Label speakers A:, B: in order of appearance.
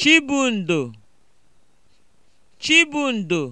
A: Chibundo! Chibundo!